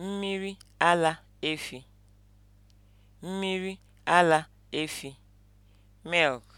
Mmiri ala efi, mmiri ala efi (Milk)